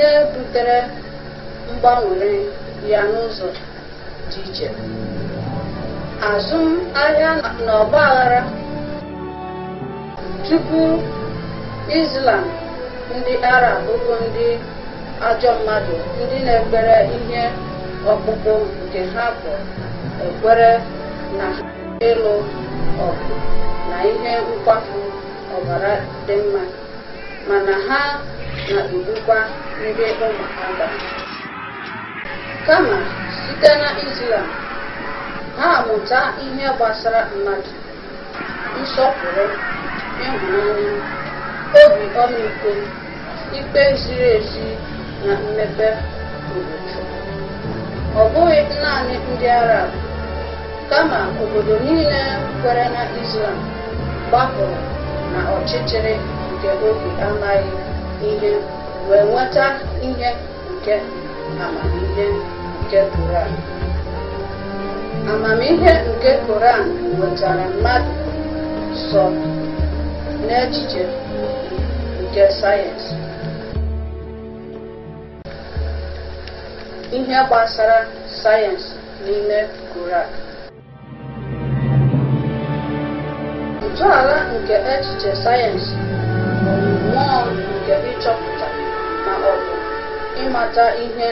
ihe butere mgbanwere ya n'ụzọ dị iche azụmahịa na ọgba aghara tupu Islam ndị Arab bụ ndị ajọ mmadụ ndị na-ekpere ihe ọkpụkpụ nke ha bụ ekwere na ịlụ ọgụ na ihe nkwafu ọbara dị mma mana ha na mbụkwa ndị ụmụ agha kama site na Islam ha amụta ihe gbasara mmadụ nsọpụrụ ịhụnanya obi ọmịiko ikpe ziri ezi na mmepe obodo ọ bụghị naanị ndị Arab kama obodo niile kwere na Islam gbapụrụ na ọchịchịrị nke obi amaghị ihe wee nweta ihe nke amamihe nke Koran amamihe nke Koran nwetara mmadụ sọ n'echiche nke sayensị ihe gbasara sayensị n'ime Koran ntọala nke echiche sayensị bụ mmụọ njem ịchọpụta ma ọ bụ ịmata ihe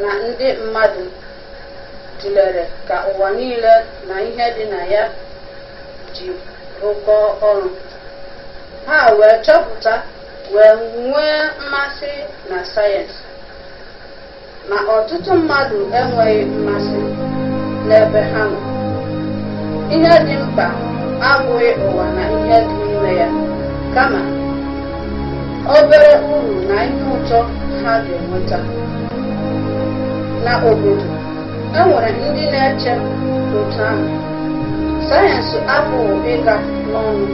na ndị mmadụ tụlere ka ụwa niile na ihe dị na ya ji ụkọ ọrụ ha wee chọpụta wee nwee mmasị na sayensị ma ọtụtụ mmadụ enweghị mmasị n'ebe ha nọ ihe dị mkpa abụghị ụwa na ihe dị n'ime ya kama obere uru na ihe ụtọ ha ga-enweta na obodo e ndị na-eche otu ahụ sayensị apụghị ịga n'ọnụ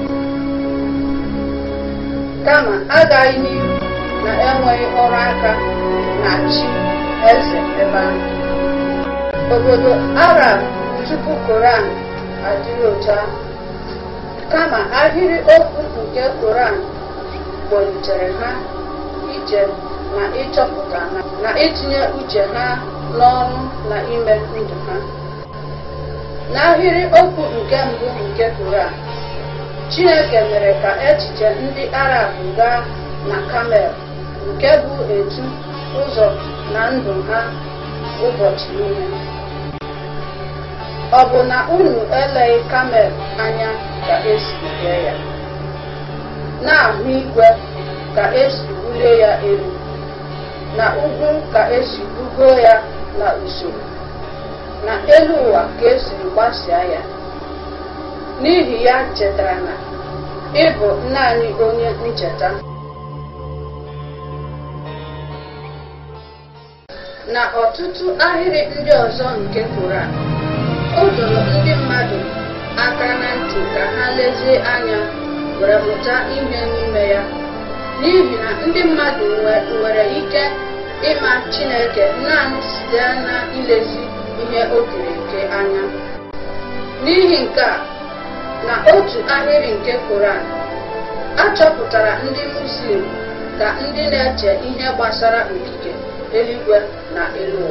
kama agaghị n'ihu na-enweghị ọrụ aka na chi eze ebe ahụ obodo arab tupu koran adịghị otu ahụ kama ahịrị okwu nke koran kpọlitere ha ije na ịchọpụta ha na itinye uche ha n'ọrụ na ime ndụ ha n'ahịrị okwu nke mbụ nke a, Chineke mere ka echiche ndị Arab gaa na Kamel nke bụ etu ụzọ na ndụ ha ụbọchị niile ọ bụ na unu eleghị Kamel anya ka esi nke ya na-ahụ igwe ka esi wulie ya elu na ugwu ka esi bugo ya na usoro na elu ụwa ka esi gbasịa ya n'ihi ya chetara na ị bụ naanị onye ncheta na ọtụtụ ahịrị ndị ọzọ nke tụra o doro ndị mmadụ aka na ntị ka ha lezie anya were mụta ime n'ime ya n'ihi na ndị mmadụ nwere ike ịma Chineke naanị site na ilezi ihe o nke anya n'ihi nke a na otu ahịrị nke Koran achọpụtara ndị Muslim ka ndị na-eche ihe gbasara okike eluigwe na elu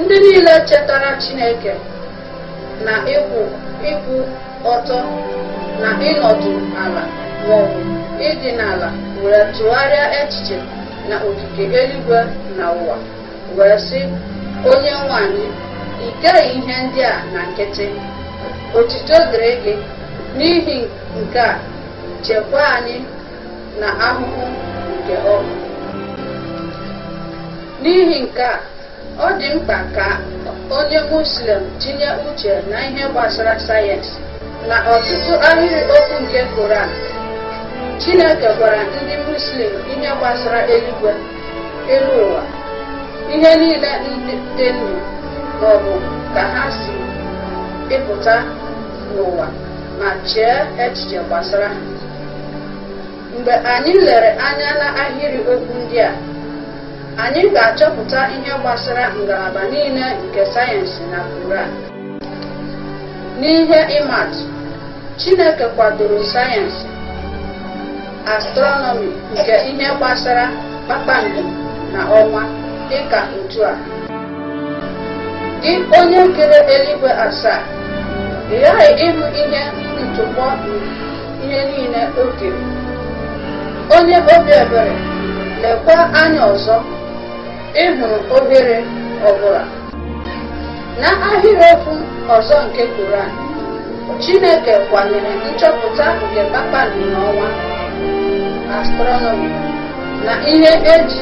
ndị niile chetara Chineke na ịkwụ ịkwụ ọtọ na ịnọdụ ala maọbụ ịdị n'ala were tụgharịa echiche na ogige eluigwe na ụwa wee sị onye nwanyị ikeghị ihe ndị a na nkịtị otito dịrị gị n'ihi nke a chekwa anyị na ahụhụ nke ọgwụ n'ihi nke a ọ dị mkpa ka onye muslim tinye uche na ihe gbasara sayensị na ọtụtụ ahịrịokwu nke koran chineke gwara ndị muslim ihe gbasara eluigwe elu ụwa ihe niile dị ndụ maọbụ ka ha si ịpụta n'ụwa ma chee echiche gbasara mgbe anyị lere anya na ahịrị okwu ndị a anyị ga-achọpụta ihe gbasara ngalaba niile nke sayensị na koran N'ihe ịmatụ, Chineke kwadoro sayensị astronomi nke ihe gbasara kpakpando na ọnwa ka otu a. dị onye kere eluigwe asaa, ị ghaghị ịhụ ihe ntụpọ ihe niile oge Onye obi ebere lekwa anya ọzọ ịhụrụ obere ọbụla. na ahịrịokwu ọzọ nke Koran Chineke kwanyere nchọpụta nke kpakpando n'ọnwa astronomi na ihe eji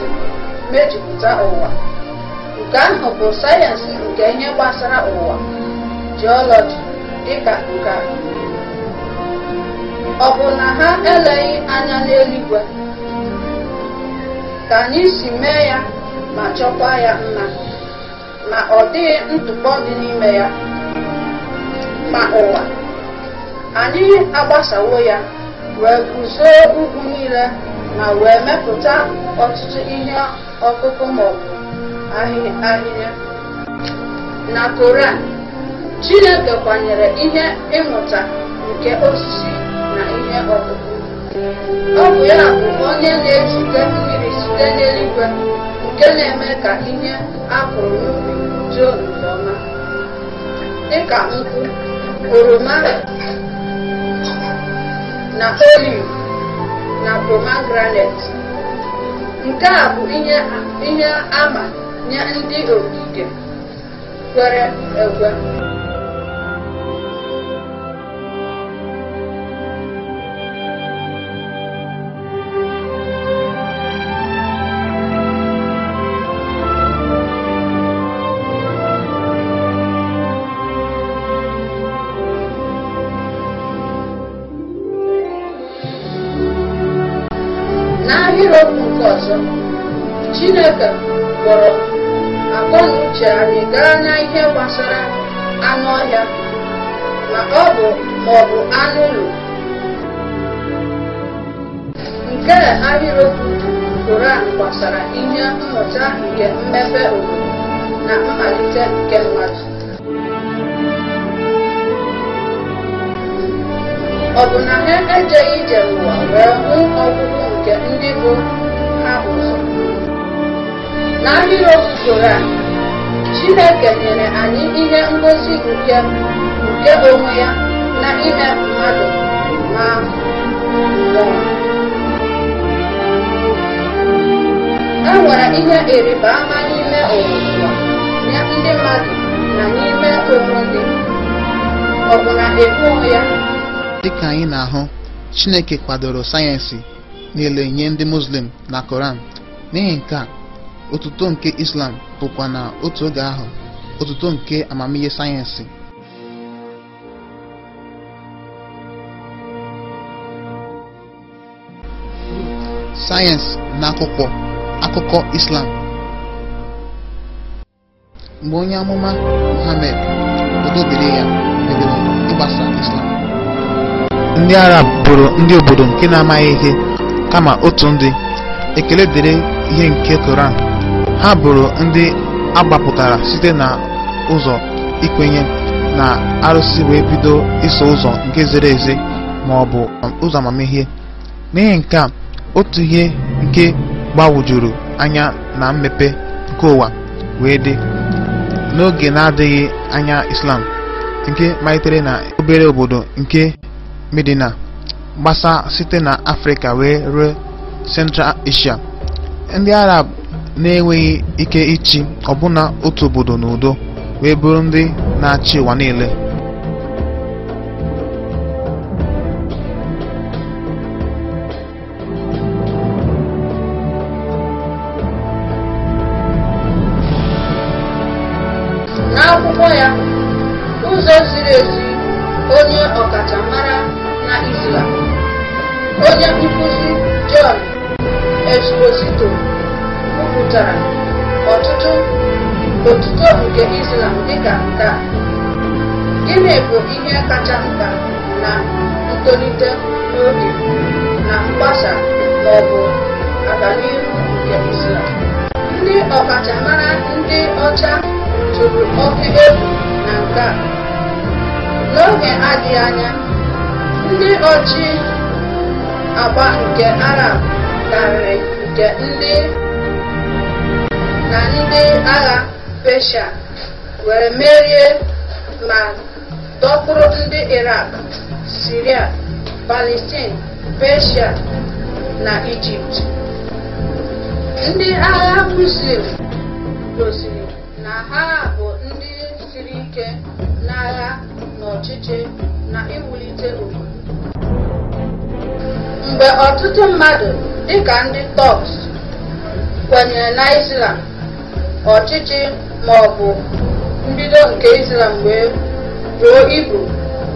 mejupụta ụwa nke ahụ bụ sayensị nke ihe gbasara ụwa jiọlọji dịka nke ọ bụ na ha eleghị anya n'eluigwe ka anyị si mee ya ma chọkwa ya mma ma ọ dịghị ntụpọ dị n'ime ya ma ụwa anyị agbasawo ya wee guzo ugwu niile ma wee mepụta ọtụtụ ihe ọkụkụ maọbụ ahịhịa na koran chineke kwanyere ihe ịmụta nke osisi na ihe ọkụkụ ọ bụ ya bụ onye na-ejide mmiri site n'eluigwe nke na-eme ka ihe akụrụ jọn nke ọma dịka nkwụ oroma na oliv na pomegranet nke a bụ ihe ama nye ndị ogige kwere ekwe n'irọpụ nke ọzọ chineke kpọrọ akọ na anyị gaa n'ihe gbasara anụ ọhịa ma ọ bụ maọbụ anụ ụlọ nke ahịrịokwu a gbasara ihe mmụta nke mmepe obodo na mmalite nke mmadụ ọ bụ na ha ejeghị ije n'ụwa wee hụ ọgwụgwụ nke ndị bụ ha ụzọ n'ahịrị usoro a chineke nyere anyị ihe ngosi nke nke onwe ya na ime mmadụ ma mmụọ e nwere ihe eriba ama n'ime ụwa nye ndị mmadụ na n'ime onwe ndị ọ bụ na ya dịka anyị na-ahụ Chineke kwadoro sayensị niile nye ndị Muslim na Koran n'ihi nke a otuto nke Islam bụkwa na otu oge ahụ otuto nke amamihe sayensị sayensị na akwụkwọ akụkọ Islam mgbe onye amụma Muhammad odobere ya ndị arab bụrụ ndị obodo nke na-amaghị ihe kama otu ndị ekele dịrị ihe nke koran ha bụrụ ndị agbapụtara site na ụzọ ikwenye na arụsị wee bido iso ụzọ nke zere eze ma ọ bụ um, ụzọ amamihe n'ihi nke a otu ihe nke gbawujuru anya na mmepe nke ụwa wee dị n'oge na-adịghị anya islam nke malitere na obere obodo nke Medina gbasa site na Afrịka wee ruo Central Asia. Ndị Arab na-enweghị ike ịchị ọbụna otu obodo n'udo wee bụrụ ndị na-achị ụwa niile. onye nkuzi John esposito kwupụtara ọtụtụ otuto nke Islam dịka nke a gịnị ihe kacha mkpa na ntolite n'oge na mgbasa ma ọ bụ nke Islam ndị ọkachamara ndị ọcha tụrụ oke egwu na nke a n'oge adịghị anya ndị ọchị agba nke Arab karịrị nke ndị na ndị agha pesha were merie ma dọkpụrụ ndị irak Siria, Palestine, persia na Ijipt. Ndị agha Muslim gosiri na ha bụ ndị siri ike n'agha na ọchịchị na iwulite obodo. mgbe ọtụtụ mmadụ dịka ndị Turks kwenyere na Islam ọchịchị ma ọ bụ mbido nke Islam wee ruo ibu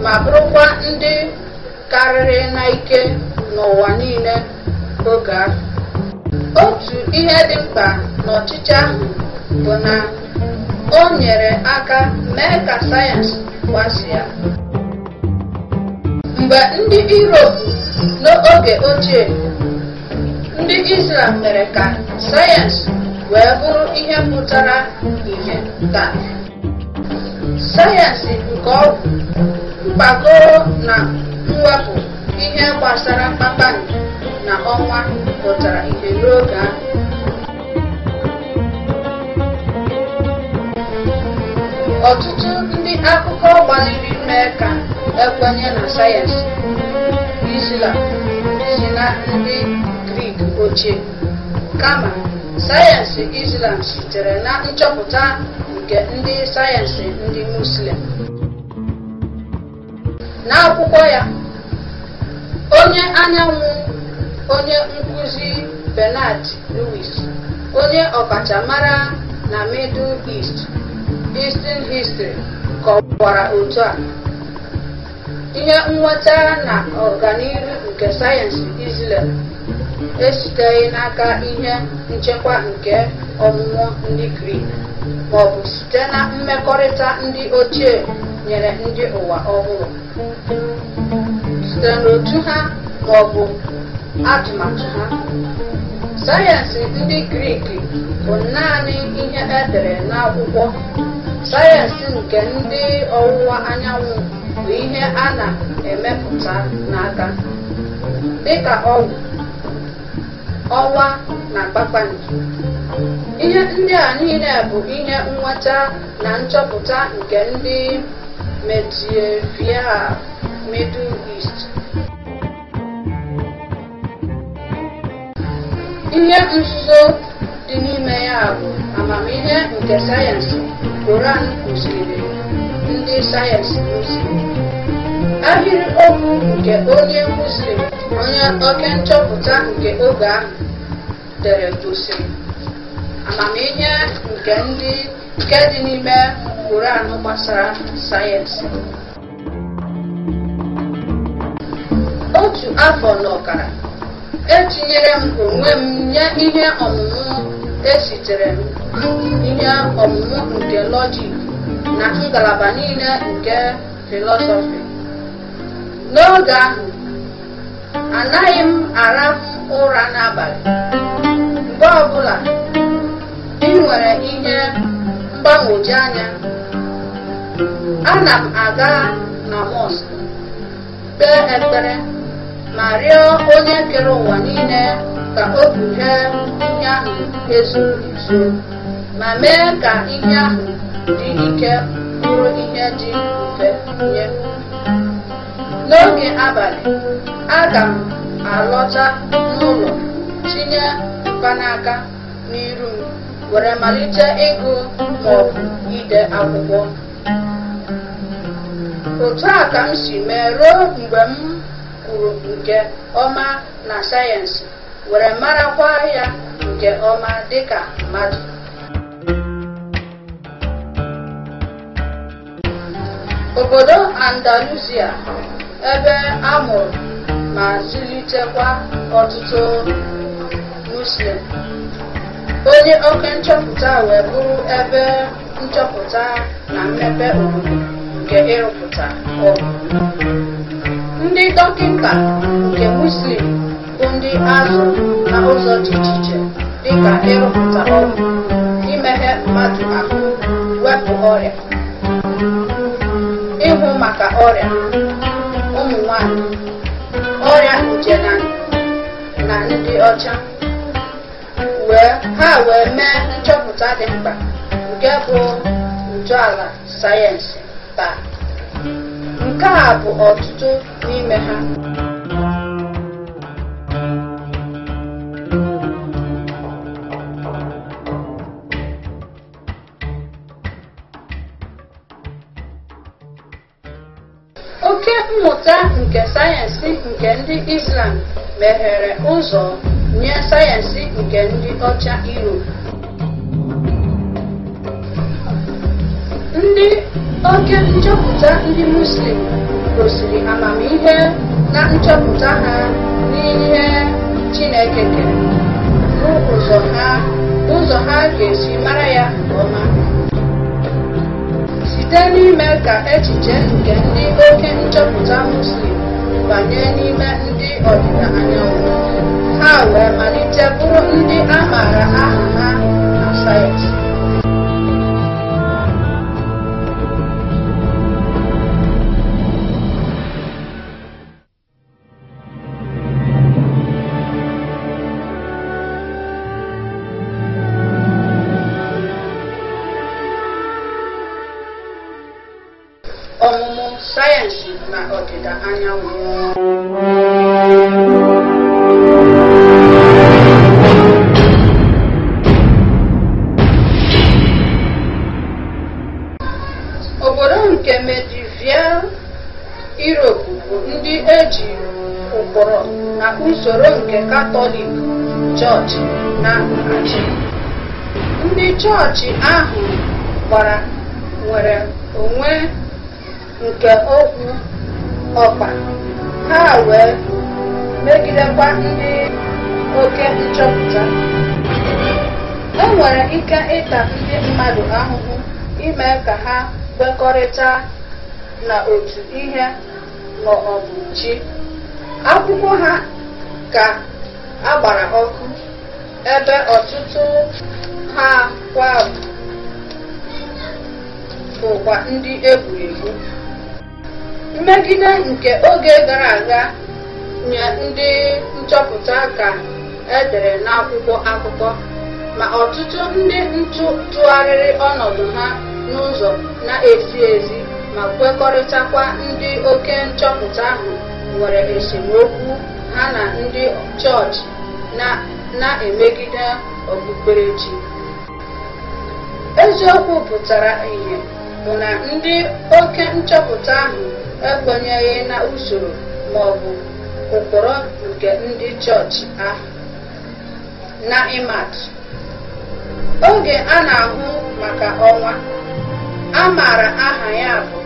ma bụrụkwa ndị karịrị n'ike n'ụwa niile oge ahụ otu ihe dị mkpa n'ọchịchị ahụ bụ na o nyere aka mee ka sayensị ya. mgbe ndị iroopu. N'oge ochie, ndị Izlam mere ka sayensị wee bụrụ ihe pụtara ihe taa. Sayensị nke ọgwụ, mkpagoro na mwepụ ihe gbasara kpakpando na ọnwa pụtara ihe n'oge ahụ. Ọtụtụ ndị akụkọ gbalịrị mee ka ekwenye na sayensị. Islam si na ndị Grik ochie kama sayensị Islam sitere na nchọpụta nke ndị sayensị ndị Muslim. N'akwụkwọ ya, onye anyanwụ onye nkuzi Bernard Lewis, onye ọkachamara na Middle East, Eastern History, kọwara otu a. ihe nweta na ọganihu nke sayensị Izrel esiteghị n'aka ihe nchekwa nke ọmụmụ ndị Grik maọbụ site na mmekọrịta ndị ochie nyere ndị ụwa ọhụrụ site n'otu ha maọbụ atụmatụ ha sayensị ndị Grik bụ naanị ihe edere n'akwụkwọ sayensị nke ndị ọwụwa anyanwụ bụ ihe a na-emepụta n'aka dịka ọgwụ ọnwa na kpakpando ihe ndị a niile bụ ihe nweta na nchọpụta nke ndị medieval Middle East ihe nzuzo dị n'ime ya bụ amamihe nke sayensị Koran kụziri ndị sayensị Muslim. okwu nke onye Muslim onye oke nchọpụta nke oge ahụ dere gosi amamihe nke ndị nke dị n'ime Quran gbasara sayensị. Otu afọ na ọkara etinyere m onwe m nye ihe ọmụmụ esitere m ihe ọmụmụ nke lọjik na ngalaba niile nke filọsọfị n'oge ahụ anaghị m arafu ụra n'abalị mgbe ọbụla ị nwere ihe mgbagwoju anya ana m aga na mọsk kpee ekpere ma rịọ onye kere ụwa niile ka o kpughee ihe ahụ ezu nso ma mee ka ihe ahụ ike bụrụ ihe dị mfe nye n'oge abalị aga m alọta n'ụlọ tinye mkpanaka n'iru m were malite ịgụ maọbụ ide akwụkwọ otu a ka m si mee ruo mgbe m kwuru nke ọma na sayensị were marakwa ya nke ọma dịka mmadụ Obodo Andalusia, ebe a mụrụ ma zụlitekwa ọtụtụ Muslim, onye oke nchọpụta wee bụrụ ebe nchọpụta na mmepe obodo nke ịrụpụta Ndị dọkịta nke Muslim bụ ndị azụ na ụzọ dị iche iche dịka ịrụpụta ọgwụ, imeghe mmadụ ahụ, wepụ ọrịa maka ọrịa ụmụ nwanyị ọrịa nje na ndị ọcha ha wee mee nchọpụta dị mkpa nke bụ ntọala sayensị taa nke a bụ ọtụtụ n'ime ha Oke mmụta nke sayensị nke ndị Islam meghere ụzọ nye sayensị nke ndị ọcha Europe. Ndị oke nchọpụta ndị Muslim gosiri amamihe na nchọpụta ha n'ihe Chineke kere, bụ ha ụzọ ha ga-esi mara ya nke ọma. site n'ime ka echiche nke ndị oke nchọpụta Muslim banye n'ime ndị ọdịda anyanwụ ha wee malite bụrụ ndị a maara aha ha na sayensị na achị ndị chọọchị ahụ gbara nwere onwe nke okwu ọkpa ha wee megidekwa ndị oke nchọpụta e nwere ike ịta ndị mmadụ ahụhụ ime ka ha kwekọrịta na otu ihe ma ọ bụ chi akwụkwọ ha ka agbara ọkụ ebe ọtụtụ ha kwa bụkwa ndị egwuregwu mmegide nke oge gara aga nye ndị nchọpụta ka edere n'akwụkwọ akụkọ ma ọtụtụ ndị ntụ tụgharịrị ọnọdụ ha n'ụzọ na-ezi ezi ma kwekọrịtakwa ndị oke nchọpụta ahụ nwere esemokwu ha na ndị chọọchị na na-emegide okpukperechi eziokwu pụtara ihe, mụ na ndị oke nchọpụta ahụ ekwenyeghị na usoro ma ọ bụ ụkpụrụ nke ndị chọọchị ahụ na ịmatụ oge a na-ahụ maka ọnwa a maara aha ya bụ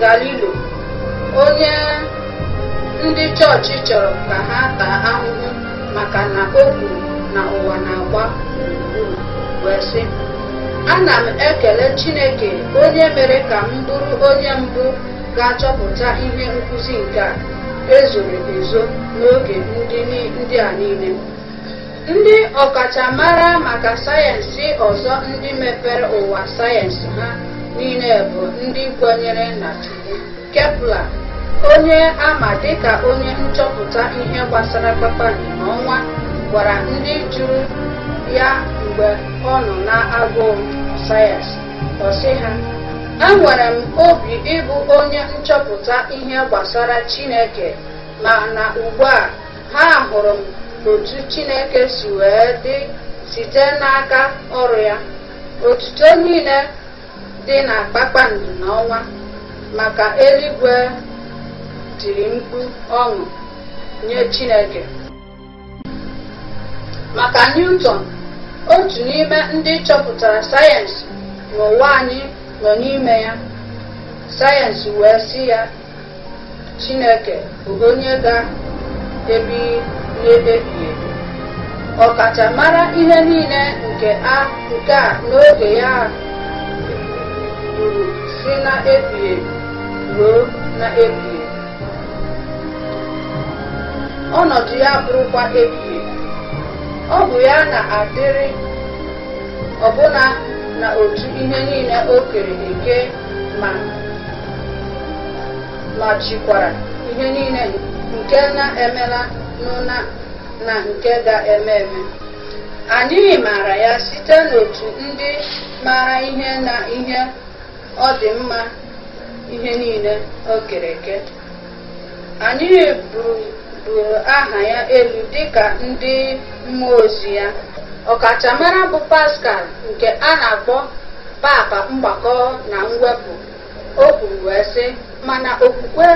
galilo onye ndị chọọchị chọrọ ka ha taa ahụhụ maka na o kwuru na ụwa na-agba gburugburu wee sị ana m ekele Chineke onye mere ka m bụrụ onye mbụ ga-achọpụta ihe nkụzi nke a ezoro ezo n'oge ndị a niile ndị ọkachamara maka sayensị ọzọ ndị mepere ụwa sayensị ha niile bụ ndị kwenyere na Chukwu Kepler onye ama dịka onye nchọpụta ihe gbasara kpakpando n'ọnwa gwara ndị jụrụ ya mgbe ọ nọ na-agụụ sayensị ọsị ha enwere m obi ịbụ onye nchọpụta ihe gbasara Chineke ma na ugbu a ha hụrụ m otu Chineke si wee dị site n'aka ọrụ ya otuto niile dị na kpakpando n'ọnwa maka eluigwe tiri mkpu ọṅụ nye Chineke maka Newton otu n'ime ndị chọpụtara sayensị n'ụwa anyị nọ n'ime ya sayensị wee si ya Chineke bụ onye ga-ebi n'ebebi ebi ọkachamara ihe niile nke a n'oge ya bụrụ si na ebighị ebi ruo na ebighị ọnọdụ ya bụrụkwa ebighị ọ bụ ya na-adịrị ọbụna na otu ihe niile o kere eke ma ma ihe niile nke na-emela na nke ga-eme eme anyị maara ya site n'otu ndị mara ihe na ihe ọ dị mma ihe niile o kere eke anyị bụrụ buliri aha ya elu dịka ndị mmụọ ozi ya ọkachamara bụ paskal nke a na-akpọ papa mgbakọ na mwepụ o kwuru wee sị mana okwukwe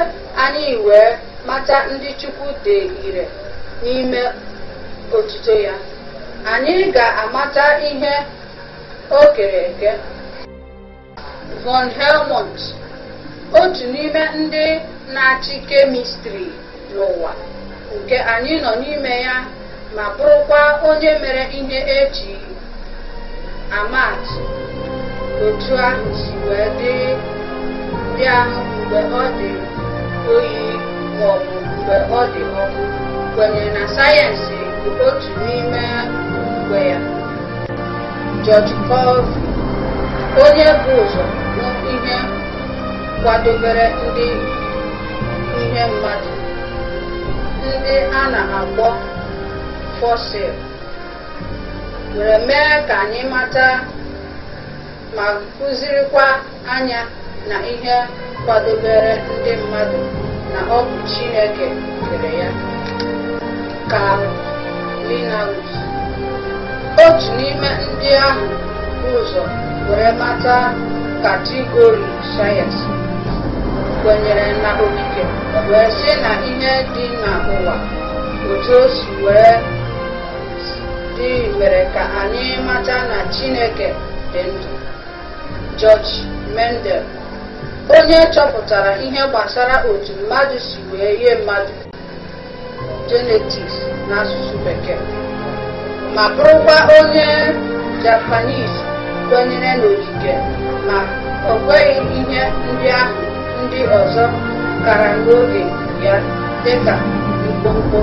anyị wee mata ndị Chukwu dị ire n'ime otuto ya anyị ga-amata ihe o kere eke von Helmont otu n'ime ndị na-achị kemistri n'ụwa nke anyị nọ n'ime ya ma bụrụkwa onye mere ihe eji amatụ otu ahụ si wee dị ahụ mgbe ọ dị oyi maọbụ mgbe ọ dị ọkụ kwenyere na sayensị bụ otu n'ime mgbe ya George Colvin onye bụ ụzọ hụ ihe kwadobere ndị ihe mmadụ ndị a na agbọ fọsil were mee ka anyị mata ma kụzirikwa anya na ihe kwadobere ndị mmadụ na ọ bụ Chineke kere ya Karl otu n'ime ndị ahụ ụzọ were mata katigori sayensị kwenyere na okike wee sị na ihe dị n'ụwa otu o si wee dị mere ka anyị mata na chineke dị ndụ George Mendel onye chọpụtara ihe gbasara otu mmadụ si wee ihe mmadụ na n'asụsụ bekee ma bụrụkwa onye Japanese kwenyere n'okike ma ọ kweghị ihe ndị ahụ ndị ọzọ kara n'oge ya dịka mkpọmkpọ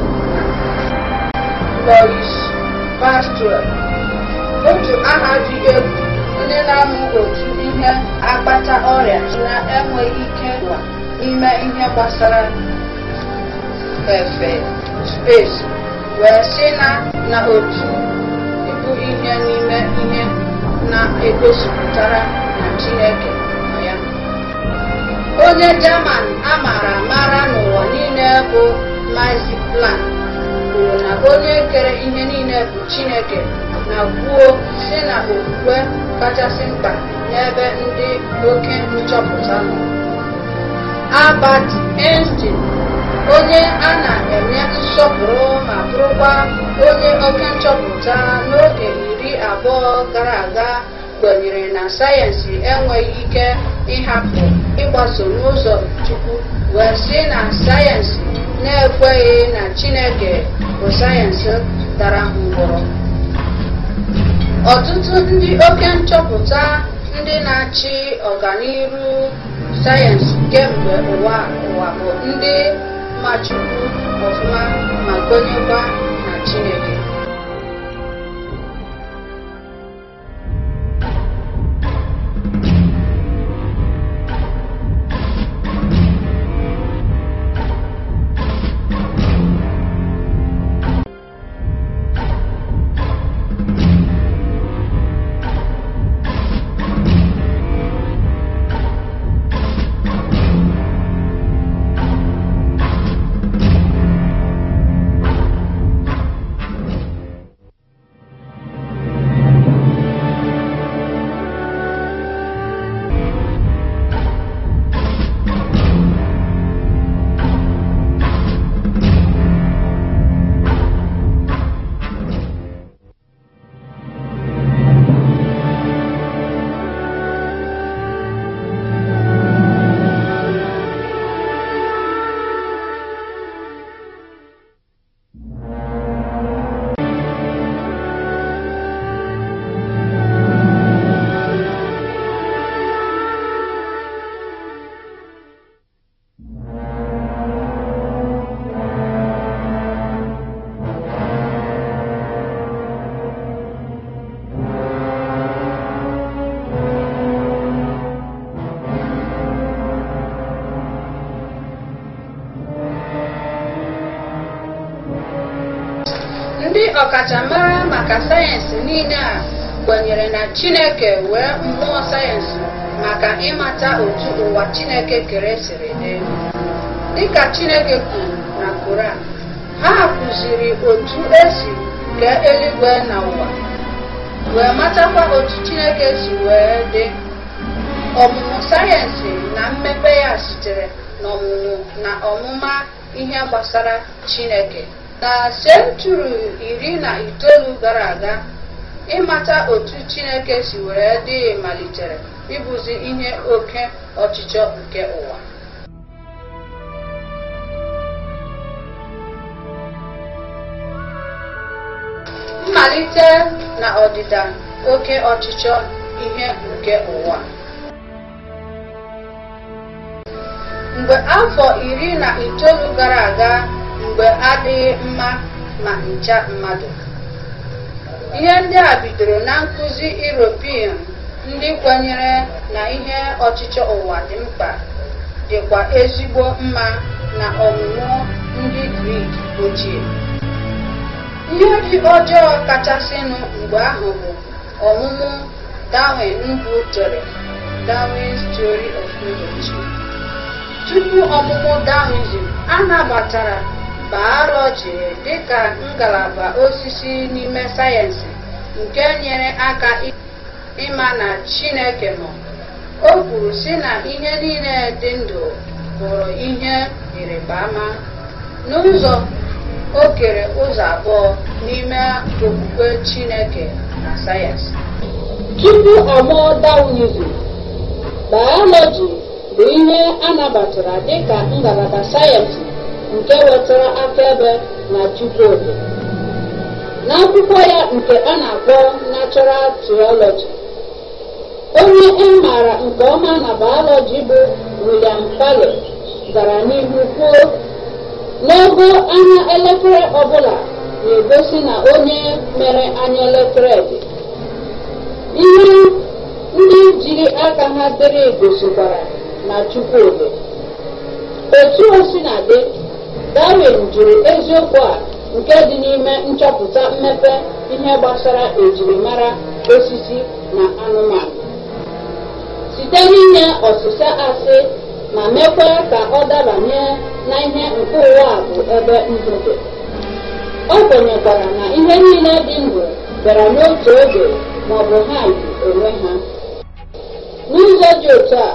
Lois Pastrel otu aha dị egwu ndị na-amụ otu ihe akpata ọrịa na-enweghị ike ime ihe gbasara efe wee sị na na otu ịbụ ihe n'ime ihe na-egosipụtara na Chineke onye German a mara n'ụwa niile bụ Max plan kwuru na onye kere ihe niile bụ Chineke na kwuo si na okwukwe kachasị mkpa n'ebe ndị oke nchọpụta nọ Albert Einstein onye a na-enye nsọpụrụ ma bụrụkwa onye oke nchọpụta n'oge iri abụọ gara aga kwenyere na sayensị enweghị ike ịhapụ ịgbaso n'ụzọ Chukwu wee sị na sayensị na-ekweghị na Chineke bụ sayensị dara ngwọrọ ọtụtụ ndị oke nchọpụta ndị na-achị ọganihu sayensị kemgbe ụwa ụwa bụ ndị machukwu ọfụma ma kwenyekwa na Chineke niile a kwenyere na chineke wee mmụọ sayensị maka ịmata otu ụwa chineke kere siri dị dịka chineke kwuru na koran ha kụziri otu esi kee eluigwe na ụwa wee matakwa otu chineke si wee dị ọmụmụ sayensị na mmepe ya sitere n'ọmụmụ na ọmụma ihe gbasara chineke na iri na itoolu gara aga Ịmata otu Chineke si were dịghị malitere ịbụzi ihe oke ọchịchọ nke ụwa. Mmalite na ọdịda oke ọchịchọ ihe nke ụwa. Mgbe afọ iri na itoolu gara aga mgbe adịghị mma ma ncha mmadụ. ihe ndị a bidoro na nkụzi European ndị kwenyere na ihe ọchịchọ ụwa dị mkpa dịkwa ezigbo mma na ọmụmụ ndị Grik ochie ndị dị ọjọọ kachasịnụ mgbe ahụ bụ ọmụmụ Darwin chọrọ Darwin's Theory of Evolution tupu ọmụmụ Darwinism a jiri dị ka ngalaba osisi n'ime sayensị nke nyere aka ịma na Chineke nọ. O kwuru si na ihe niile dị ndụ bụrụ ihe ịrịba ama. N'ụzọ o kere ụzọ abụọ n'ime okwukwe Chineke na sayensị. Tupu ọ mụọ Daunizm, Bayọlọji bụ ihe anabatara dịka ngalaba sayensị nke wetara akaebe na Chukwudi. N'akwụkwọ ya nke a na-akpọ Natural Theology, onye e maara nke ọma na biology bụ William Paley gara n'ihu kwuo n'ego anya elekere ọbụla na-egosi na onye mere anya elekere dị. Ihe ndị jiri aka ha dere gosikwara na Chukwudi. Etu o si na dị darwin jụrụ eziokwu a nke dị n'ime nchọpụta mmepe ihe gbasara ejirimara osisi na anụmanụ site n'inye ọsịsa asị ma mekwa ka ọ dabanye na ihe nke ụwa a bụ ebe ndụ o ọ kwenyekwara na ihe niile dị ndụ bịara n'otu oge ma ọ bụ ha yi ha n'ụzọ dị otu a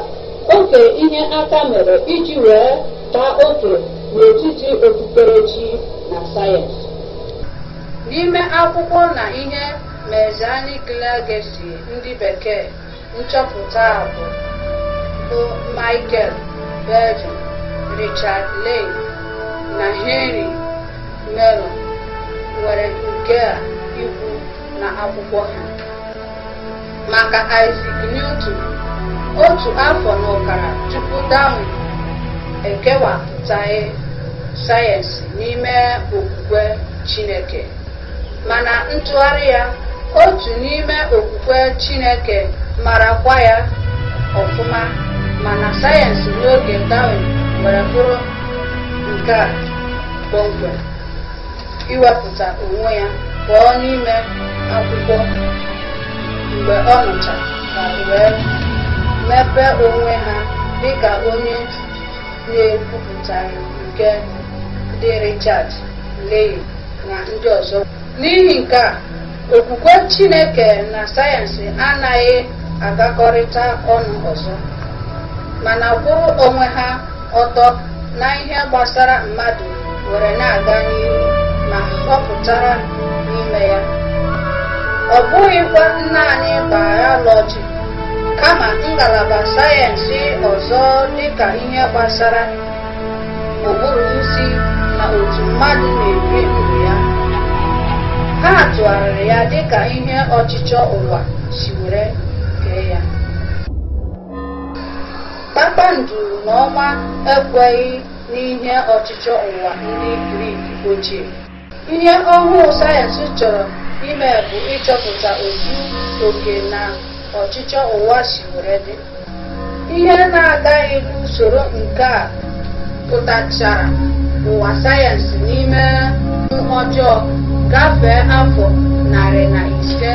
oke ihe aka mere iji wee taa oke n'etiti okpukperechi na sayensị. N'ime akwụkwọ na ihe Mesianic Legacy ndị bekee nchọpụta a bụ bụ Michael Bergen, Richard Lane na Henry meyron nwere nke a ikwu na akwụkwọ ha. Maka Isaac Newton, otu afọ na ọkara tupu Darwin ekewapụtaghị sayensị n'ime okwukwe Chineke mana ntụgharị ya otu n'ime okwukwe Chineke marakwa ya ọfụma mana sayensị n'oge Darwin nwere bụrụ nke a kpọmkwem iwepụta onwe ya pụọ n'ime akwụkwọ mgbe ọ nụcha ka wee mepee onwe ha dịka onye na-ekwupụta nke ndị Richard lee na ndị ọzọ n'ihi nke a okwukwe Chineke na sayensị anaghị agakọrịta ọnụ ọzọ mana kwụrụ onwe ha ọtọ na ihe gbasara mmadụ were na-aga n'ihu ma họpụtara n'ime ya ọ bụghịkwa naanị bayọlọji kama ngalaba sayensị ọzọ dịka ihe gbasara ụbụrụ isi otu mmadụ na-ebi ndụ ya ha tụgharịrị ya dịka ihe ọchịchọ ụwa si were kee ya kpakpanduru na ọnwa ekweghị n'ihe ọchịchọ ụwa ndị grik ochie ihe ọhụụ sayensị chọrọ ime bụ ịchọpụta otu oke na ọchịchọ ụwa si were dị ihe na-agaghị n'usoro nke a pụtachara ụwa sayensị n'ime ụmụ ọjọọ gafee afọ narị na ise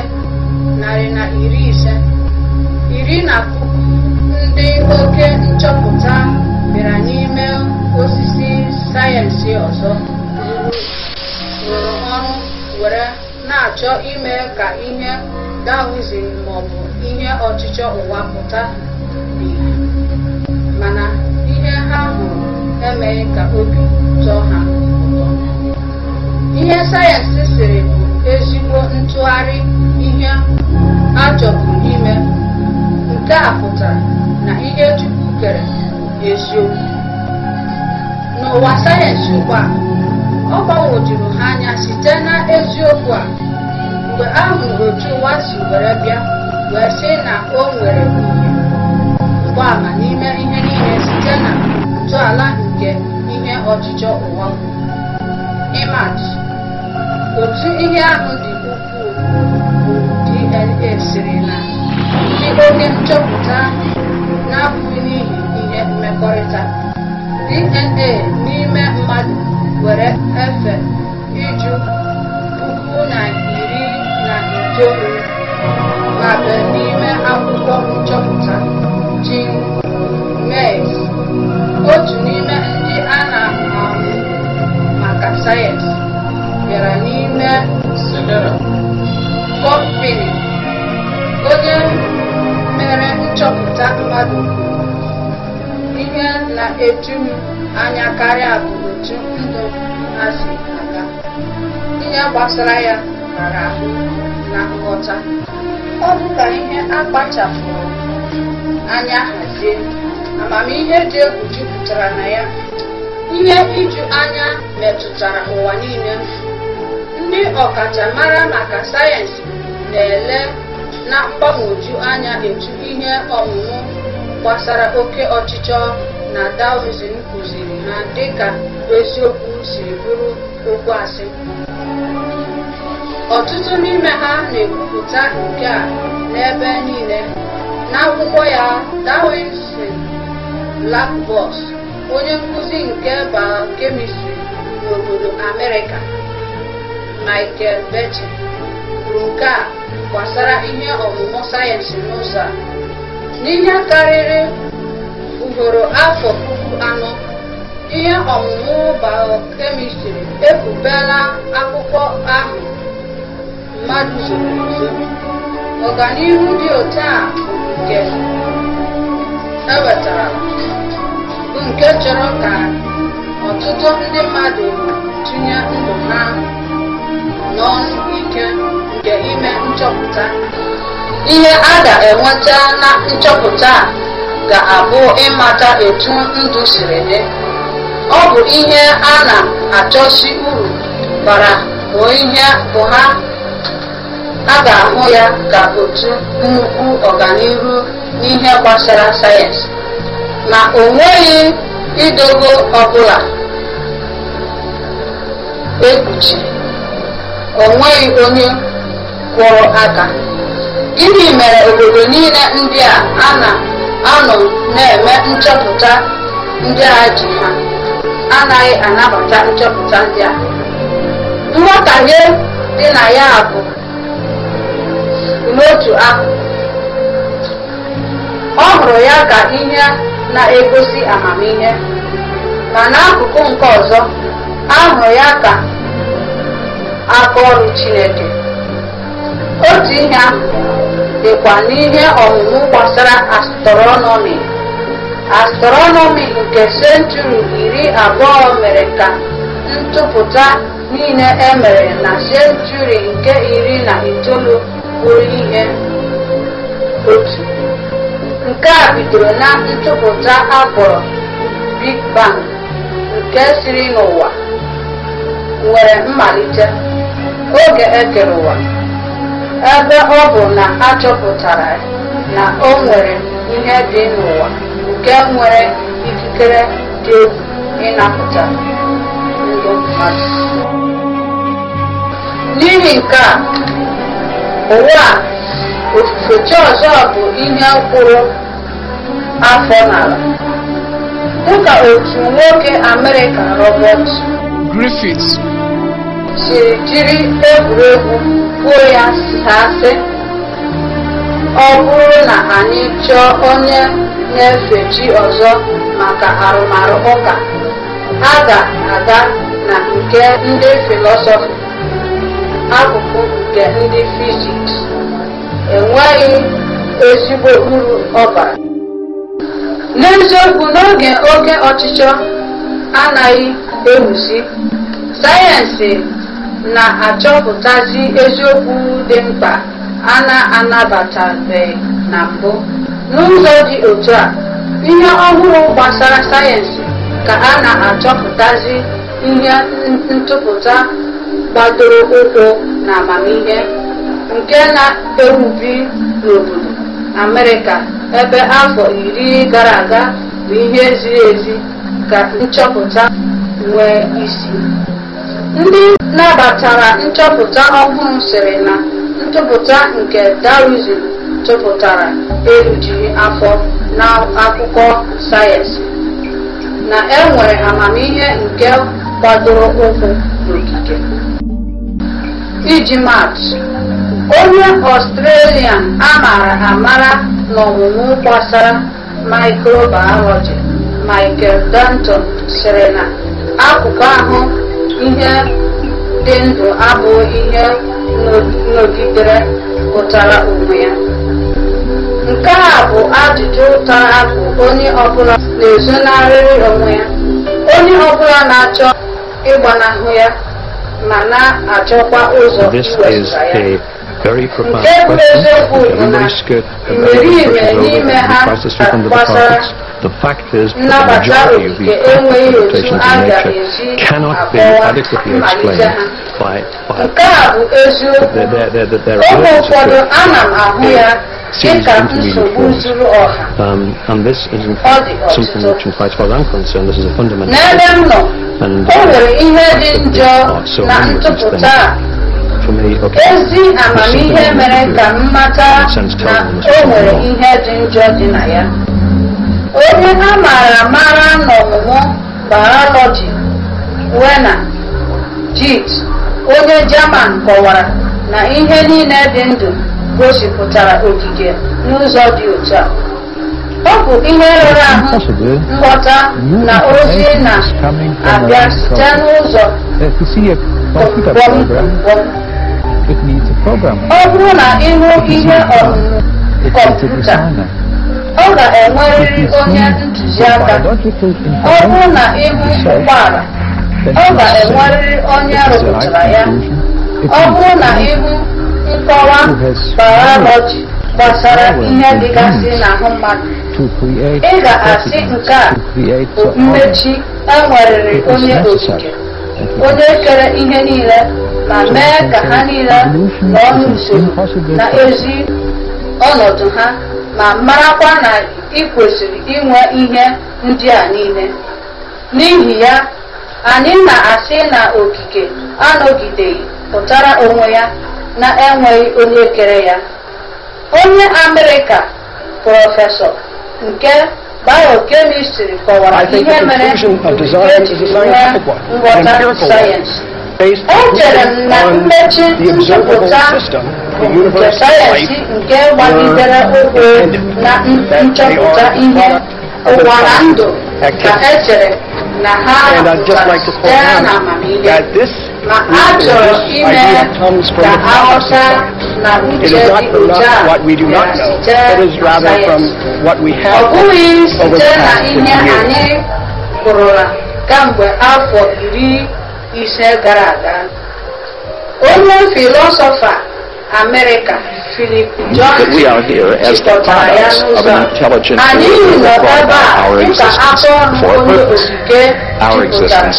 narị na iri ise iri na puku ndị oke nchọpụta bịara n'ime osisi sayensị ọzọ rụrụ ọrụ were na-achọ ime ka ihe dawizin maọbụ ihe ọchịchọ ụwa pụta mana emeghị ka obi tọọ ha ụtọ ihe sayensị siri bụ ezigbo ntụgharị ihe a ime nke a pụtara na ihe Chukwu eziokwu n'ụwa sayensị ụgbọ a ọ gbagwojuru ha anya site na eziokwu a mgbe a hụrụ otu ụwa si were bịa wee sị na o nwere ụgbọala n'ime ihe niile site na ntọala nke ihe ọchịchọ ụwa ịmatụ otu ihe ahụ dị ukwuu bụ DNA siri na ndị oke nchọpụta na-abụghị n'ihi ihe mmekọrịta DNA n'ime mmadụ were efe iju puku na iri na itoolu n'ime akwụkwọ nchọpụta Jean otu n'ime ndị a na ahụ maka sayensị bịara n'ime kọmpini onye mere nchọpụta mmadụ ihe na-eju anya karịa bụ otu ndụ ha si aga ihe gbasara ya mara ahụ na nghọta ọ bụ ka ihe akpachapụrụ anya hazie amamihe dị egwu jupụtara na ya ihe iju anya metụtara ụwa niile ndị ọkachamara maka sayensị na-ele na mgbagwoju anya etu ihe ọmụmụ gbasara oke ọchịchọ na Taoism kụziri ha dịka eziokwu siri bụrụ okwu asị ọtụtụ n'ime ha na-ekwupụta nke a n'ebe niile n'akwụkwọ ya Taoism black box onye nkuzi nke kemistri n'obodo Amerịka, Michael Becher, kwuru nke a gbasara ihe ọmụmụ sayensị n'ụzọ a. N'ihe karịrị ugboro afọ puku anọ, ihe ọmụmụ bayokemịstrị ekwubela akwụkwọ ahụ mmadụ zụrụ ọganihu dị otu a nke ewetara nke chọrọ ka ọtụtụ ndị mmadụ tinye ndụ ha n'ọnụ ike nke ime nchọpụta ihe a ga-enweta na nchọpụta a ga-abụ ịmata etu ndụ siri dị ọ bụ ihe a na-achọsi uru bara bụ ihe bụ ha a ga-ahụ ya ka otu nnukwu ọganihu n'ihe gbasara sayensị na o nweghị idogo ọbụla ekpuchi o nweghị onye kwụrụ aka gịnị mere obodo niile ndị a na-anọ na-eme nchọpụta ndị a ji ha anaghị anabata nchọpụta ndị a nghọtahie dị na ya bụ n'otu akụkụ ọ hụrụ ya ka ihe na-egosi amamihe ma n'akụkụ nke ọzọ ahụ ya ka aka ọrụ Chineke otu ihe ahụ dịkwa n'ihe ọmụmụ gbasara astronomi astronomi nke senchuri iri abụọ mere ka ntụpụta niile e mere na senchuri nke iri na itoolu bụrụ ihe otu Nke a bidoro na ntụpụta a Big Bang nke siri n'ụwa nwere mmalite oge ekere ụwa ebe ọ bụ na achọpụtara na o nwere ihe dị n'ụwa nke nwere ikikere dị egwu ịnapụta ndụ mmadụ n'ihi nke a ụwa ofufe ọzọ bụ ihe mkpụrụ afọ n'ala dịka otu nwoke Amerịka Robert Griffith siri jiri egwuregwu kwuo ya sasị ọ bụrụ na anyị chọọ onye na-efe ọzọ maka arụmarụ ụka a ga-aga na nke ndị filosofi akụkụ nke ndị fiziks enweghị ezigbo uru ọ n'eziokwu n'oge oke ọchịchọ anaghị ewuzi sayensị na-achọpụtazi eziokwu dị mkpa a na-anabatabeghị na mbụ n'ụzọ dị otu a ihe ọhụrụ gbasara sayensị ka a na-achọpụtazi ihe ntụpụta gbadoro ụkwụ na amamihe nke na-ewubi n'obodo Amerịka ebe afọ iri gara aga bụ ihe ziri ezi ka nchọpụta nwee isi. Ndị nabatara nchọpụta ọhụrụ sịrị na ntụpụta nke Darwin tụpụtara erujughị afọ n'akụkọ sayensị na enwere nwere amamihe nke gbadoro ụkwụ n'okike iji maatụ onye ọstrelia amara amara n'ọmụmụ gbasara mikrobiology michael danton sịrị na akụkụ ahụ ihe dị ndụ abụghị ihe nọgidere pụtara onwe ya nke a bụ ajụjụ ụtara akụ onye ọbụla na-ezonarịrị onwe ya onye ọbụla na-achọ ịgbanahụ ya ma na-achọkwa ụzọ iwezụga ya very profound questions which everybody's scared of passes through from the departments. The fact is that the majority of these interpretations in nature cannot be adequately explained by, by there, there, there, there, there are um, and this is in fact something a ezi amamihe mere ka m mata na o nwere ihe dị njọ dị na ya onye a mara amara n'ọmụmụ bayọlọji wena jit onye jaman kọwara na ihe niile dị ndụ gosipụtara ogige n'ụzọ dị otu a ọ bụ ihe rụrụ ahụ nghọta na ozi na-abịa site n'ụzọ gwọm eh, It needs a program. Ọ bụrụ na hụ ihe ọzụzụ kọmputa, ọ ga-enwerịrị onye ntụziaka. Ọ bụrụ na hụ ụgbọala, ọ ga-enwerịrị onye rụpụtara ya. Ọ bụrụ na hụ nkọwa bayọlọji gbasara ihe dịgasị n'ahụ mmadụ, ị ga-asị nke a bụ mmechi enwerịrị e onye okike, onye kere ihe niile ma mee ka ha niile n'ọnụ usoro na-ezi ọnọdụ ha ma marakwa na ị kwesịrị inwe ihe ndị a niile n'ihi ya anyị na-asị na okike anọgideghị pụtara onwe ya na-enweghị onye kere ya onye amerịka prọfesọ nke biokemistri kọwara ihe mere ji nghọta sayensị based on the observable system the universe life were intended, that they are the ndụ ka echere na ha pụtara site n'amamihe na a ime ka aghọta na uche dị otu a site site na ihe anyị hụrụla kemgbe afọ iri ise gara aga onye filosofa America Philip John chịkọtara ya n'ụzọ anyị nọ ebe a dịka afọ ọnụ onye okike jupụtara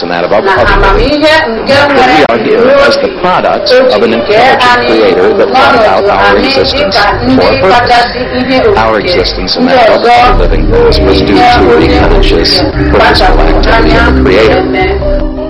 na amamihe nke nwere n'obi nke anyị n'ọnọdụ anyị dịka ndị kachasị ihe okike ndị ọzọ bụ ihe onye okike kpachapụrụ anya wee mee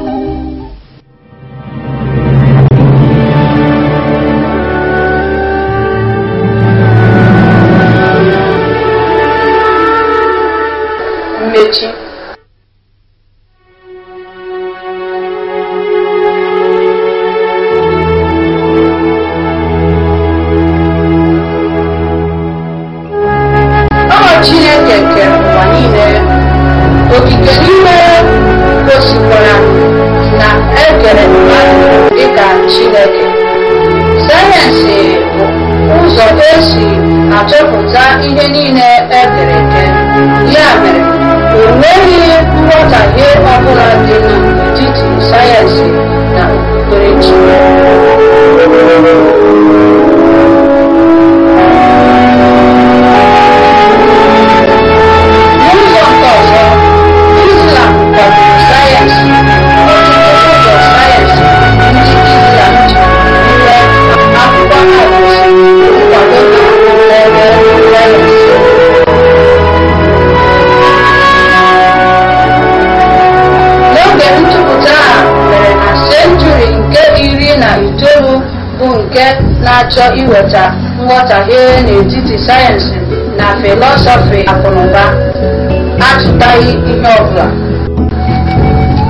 na-achọ iweta nghọtahie n'etiti sayensị na filọsọfị akụnụba atụtaghị ihe ọbụla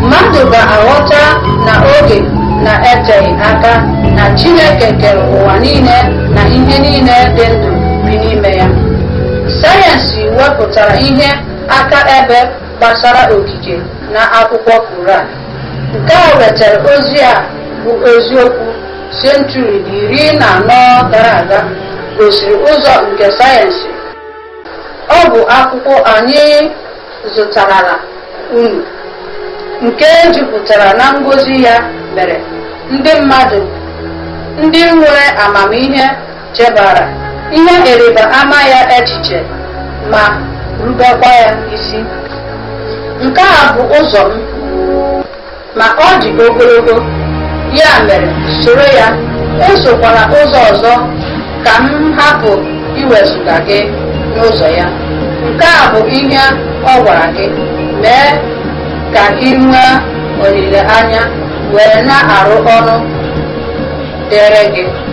mmadụ ga-aghọta na oge na-eteghị aka na Chineke kere ụwa niile na ihe niile dị ndụ bi n'ime ya sayensị wepụtara ihe aka ebe gbasara okike na akwụkwọ Koran nke a wetara ozi a bụ eziokwu senchuri iri na anọ gara aga gosiri ụzọ nke sayensị ọ bụ akwụkwọ anyị zụtarala unu nke jupụtara na ngozi ya mere ndị mmadụ ndị nwere amamihe chebara ihe ịrịba ama ya echiche ma rubekwa ya isi nke a bụ ụzọ m ma ọ dị ogologo ya mere soro ya esokwala ụzọ ọzọ ka m hapụ iwezụga gị n'ụzọ ya nke a bụ ihe ọ gwara gị mee ka gị nwee olileanya were na-arụ ọrụ dịrị gị